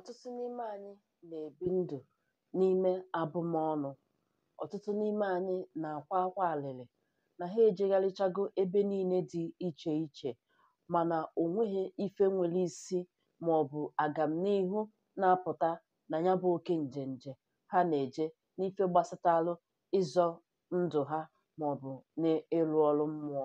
ọtụtụ n'ime anyị na-ebi ndụ n'ime abụmọnụ ọtụtụ n'ime anyị na-akwa akwa alịlị na ha ejegharịchago ebe niile dị iche iche mana o ife nwere isi ma ọ maọbụ agamnihu na-apụta na ya bụ oke njenje ha na-eje n'ife gbasatalụ ịzọ ndụ ha maọbụ n'ịrụ ọrụ mmụọ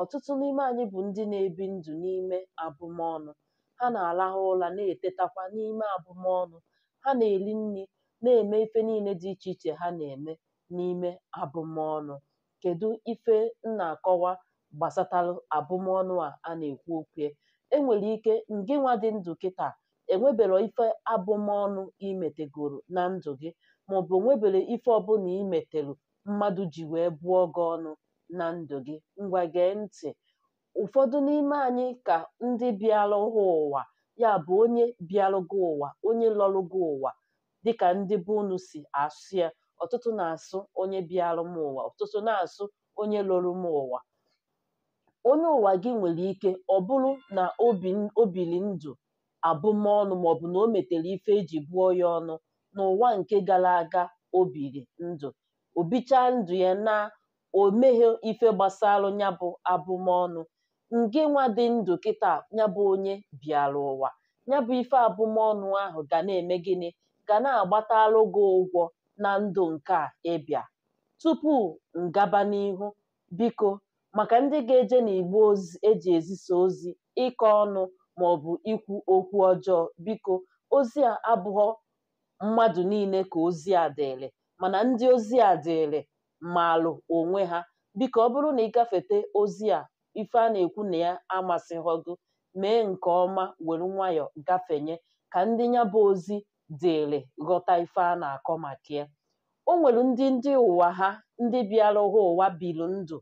ọtụtụ n'ime anyị bụ ndị na-ebi ndụ n'ime abụmọnụ ha na-arahụ ụra na-etetakwa n'ime abụmọnụ ha na eli nri na-eme ife niile dị iche iche ha na-eme n'ime abụmọnụ kedu ife m na-akọwa gbasatarụ abụmọnụ a a na-ekwu okwu Enwere ike, ike ngịnwa dị ndụ kịta enwebero ife abụmọnụ imetegoro na ndụ gị maọbụ nwebere ife ọbụla imetelu mmadụ ji wee bụọ gị ọnụ na ndụ gị ngwa gee ntị ụfọdụ n'ime anyị ka ndị bịalụghị ụwa ya bụ onye bịalụgo ụwa onye gị ụwa dịka ndị be unu si asụ ya ọtụtụ na-asụ onye bịalụ m ụwa ọtụtụ na-asụ onye lụrụ m ụwa onye ụwa gị nwere ike ọ bụrụ na o biri ndụ abụmọnụ maọbụ na o metere ife eji bụọ ya ọnụ n'ụwa nke gara aga o biri ndụ obicha ndụ ya na o meghe ife gbasara ya bụ abụmọnụ nke nwa dị ndụ kịta ya bụ onye bịara ụwa ya bụ ife abụmọnụ ahụ ga na-eme gịnị ga na agbata gị ụgwọ na ndụ nke a ịbịa tupu ngaba n'ihu biko maka ndị ga-eje n'igbe eji ezisa ozi ịkọ ọnụ bụ ikwu okwu ọjọọ biko ozi a abụghọ mmadụ niile ka ozi a dịrị mana ndị ozi a dịrị maalụ onwe ha biko ọ bụrụ na ị gafete ozi a ife a na-ekwu na ya amasịghọgụ mee nke ọma were nwayọọ gafenye ka ndị ya bụ ozi dịrị ghọta ife a na-akọ maka ya o nwere ndị ndị ụwa ha ndị bịara ha ụwa biri ndụ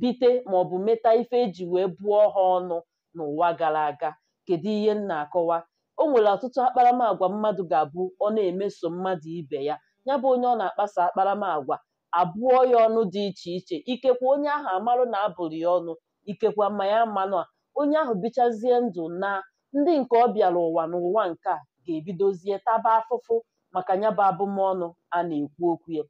bite maọbụ meta ife eji wee bụọ ha ọnụ n'ụwa gara aga kedu ihe m na-akọwa o nwere ọtụtụ akparamagwa mmadụ ga-abụ ọ na-emeso mmadụ ibe ya ya bụ onye ọ na-akpasa akparamagwa abụọ ya ọnụ dị iche iche ikekwe onye ahụ amarụ na abụrụ ya ọnụ ikekwa ma ya manụ onye ahụ bichazie ndụ na ndị nke ọ bịara ụwa n'ụwa nke a ga-ebidozie taba afụfụ maka nyaba abụmọnụ a na-ekwu okwu ya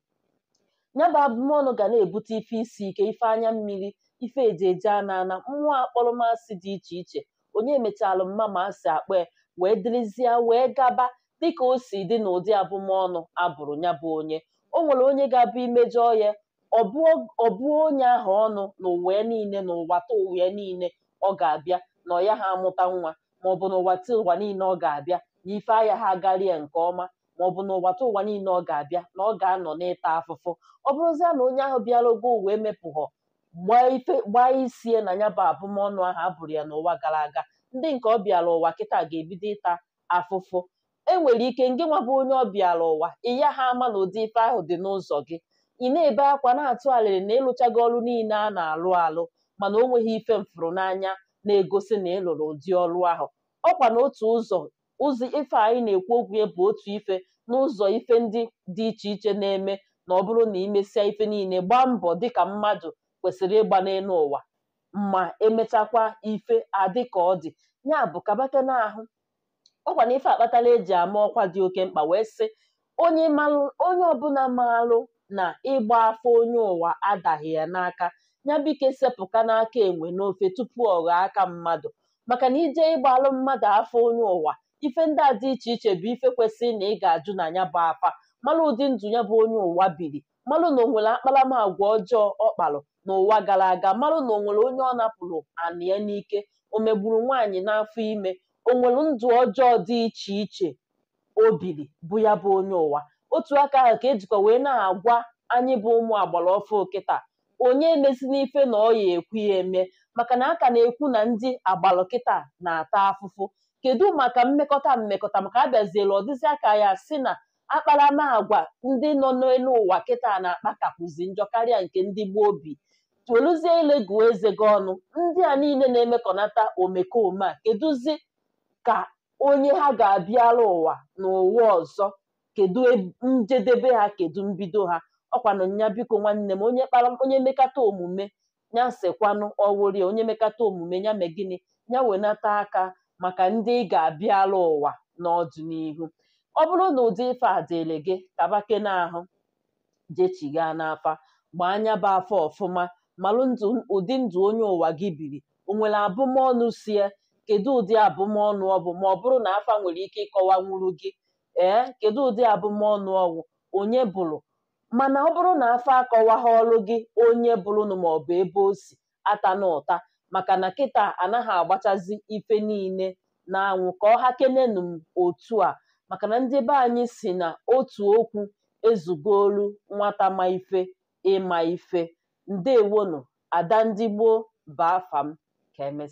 nyaba abụmọnụ ga na-ebute ife isi ike ife anya mmiri ife ejeje ana ana mmụọ akpọrọmasị dị iche iche onye mechalụ mma ma a si akpa wee dịrịzie wee gaba dịka o si dị n'ụdị abụmọnụ abụrụ ya bụ onye o nwere onye ga-abụ imejọ ya ọ bụ onye ahụ ọnụ n'ụwa niile n'ụwa taa ụwa niile ọ ga-abịa na ọ ya ha amụta nwa maọbụ n'ụwa taa ụwa niile ọ ga-abịa na ife anya ha agarie nke ọma maọbụ n'ụwa taa ụwa niile ọ ga-abịa na ọ ga-anọ n'ịta afụfụ ọ bụrụzie na onye ahụ ogo uwe mepụghọ gbaa isie na ya bụ abụmọnụ ahụ abụrụ ya n'ụwa gara aga ndị nke ọ bịara ụwa kịta ga-ebido ịta afụfụ enwere ike ngị nwa bụ onye bịara ụwa iya ha ama na ụdị ife ahụ dị n'ụzọ gị ị na-ebe akwa na-atụ alịrị na ịlụchago ọrụ niile a na-alụ alụ mana ọ nweghị ife mfụrụ n'anya na-egosi na ịlụrụ ụdị ọrụ ahụ ọkwa na otu ụzọ ụzọ ife anyị na-ekwu okwu ya bụ otu ife n'ụzọ ife ndị dị iche iche na-eme na ọ bụrụ na imesịa ife niile gbaa mbọ dịka mmadụ kwesịrị ịgba n'elu ụwa ma emechakwa ife adị ka ọ dị ya bụ kabata n'ahụ ọkwa na ife akpatala eji ama ọkwa dị oke mkpa wee sị onye ọbụla maalụ na ịgba afọ onye ụwa adaghị ya n'aka ya bụike sepụka n'aka enwe n'ofe tupu ọ ghọọ aka mmadụ maka na ije ịgbalụ mmadụ afọ onye ụwa ife ndị a dị iche iche bụ ife kwesịrị na ị ga-ajụ na ya bụ afa malụ ụdị ndụ ya bụ onye ụwa biri malụ na onwere nwere akparamagwa ọjọọ ọ na n'ụwa gara aga malụ na o nwere onye ọ napụrụ anị ya n'ike o megburu nwaanyị n'afọ ime onwere ndụ ọjọọ dị iche iche o biri bụ ya bụ onye ụwa otu aka ahụ ka ejikwa wee na-agwa anyị bụ ụmụ agbara ọfụ kịta onye emesi n'ife na ọ ya ekwu ya eme maka na aka na-ekwu na ndị agbara na-ata afụfụ kedu maka mmekọta mmekọta maka abịaziela ọdịzi aka ya si na akparamagwa ndị nọ n'elu ụwa kịta na-akpakapụzi njọ karịa nke ndị gboo obi toluzie ile gụọ eze gị ọnụ ndị a niile na-emekọnata omekome a kedụzi ka onye ha ga-abịara ụwa n'ụwa ọzọ kedu e, njedebe ha kedu mbido ha ọkwanụ nya biko nwanne m onye kpara onye mekata omume ya sekwanụ ọwụrị onye mekata omume ya mee gịnị ya wenata aka maka ndị ị ga-abịala ụwa n'ọdịnihu ọ bụrụ na ụdị ife a dịrị gị kabake n'ahụ jechigha n'afa gbaa anya bụ afọ ọfụma malụ ụdị ndụ onye ụwa gị biri o nwere abụmọnụ sie kedu ụdị abụmọnụ ọ bụ ma ọ bụrụ na afa nwere ike ịkọwa nwuru gị ee eh, kedu ụdị abụmọnụ ọwụ onye bụrụ mana ọ bụrụ na afọ akọwagha ọrụ gị onye bụrụnụ maọbụ ebe o si ata na ụta maka na kịta anaghị agbachazi ife niile n'anwụ ka ọ ha kenenu m otu a maka na ndị be anyị si na otu okwu ezugolu nwata ma ife ịma ife ada ndị gboo baa fam